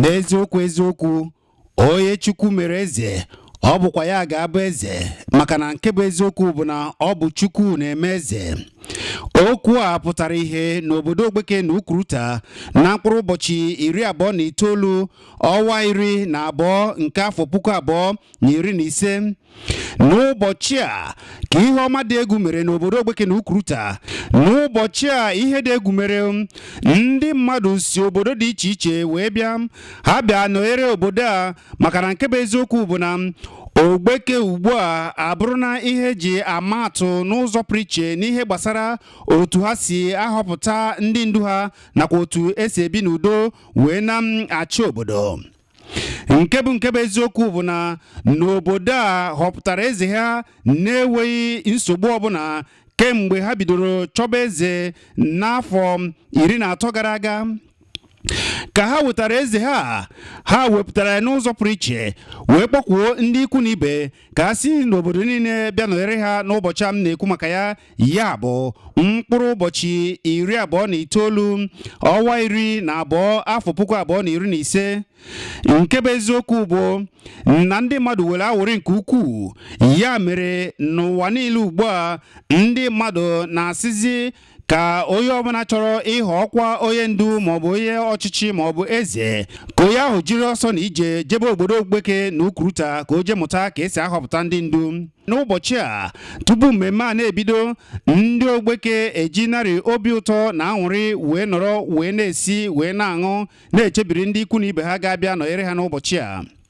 n'eziokwu eziokwu onye chukwu mere eze ọ bụkwa ya ga-abụ eze maka na nke bụ eziokwu bụ na ọ bụ chukwu na-eme eze okwu a pụtara ihe n'obodo ogbeke na Ụkwụrụta na mkpụrụ ụbọchị iri abụọ na itoolu ọwa iri na abụọ nke afọ puku abụọ na iri na ise n'ụbọchị a ka ihe ọma dị egwu mere n'obodo ogbeke na Ụkwụrụta n'ụbọchị a ihe dị egwu mere ndị mmadụ si obodo dị iche iche wee bịa ha bịa nọnyere obodo a maka na nke bụ eziokwu bụ na ogbeke ugbu a abụrụna ihe eji ama atụ n'ụzọ pụrụ n'ihe gbasara otu ha si ahọpụta ndị ndu ha nakwa otu esi ebi n'udo wee na-achị obodo nke bụ nke bụ eziokwu bụ na n'obodo a họpụtara eze ha na-enweghị nsogbu ọbụla kemgbe ha bidoro chọba eze n'afọ iri na atọ gara aga ka ha wetara eze ha ha wepụtara ya n'ụzọ pụrụ iche wee kpọkwuo ndị ikwu na ibe ka ha si n'obodo niile bịa nọnyere ha n'ụbọchị a m na-ekwu maka ya ya bụ mkpụrụ ụbọchị iri abụọ na itoolu ọnwa iri na abụọ afọ puku abụọ na iri na ise nke bụ eziokwu bụ na ndị mmadụ were awụrị nke ukwuu ya mere n'ụwa niile ugbu a ndị mmadụ na-asịzi ka onye ọbụla chọrọ ịghọ ọkwa onye ndu maọbụ onye ọchịchị maọbụ eze ka onye ahụ jiri ọsọ na ije jebe obodo ogbeke na ukuruta ka o jee mụta ka esi ahọpụta ndị ndu n'ụbọchị a tupu mmemme a na-ebido ndị ogbeke eji narị obi ụtọ na anwụrị wee nọrọ wee na-esi wee na-aṅụ na-echebiri ndị ikwu na ibe ha ga-abịa nọnyere ha n'ụbọchị a